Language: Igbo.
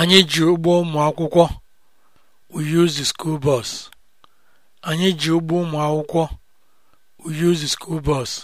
Anyị ji ụgbọ ụmụ akwụkwọ. We use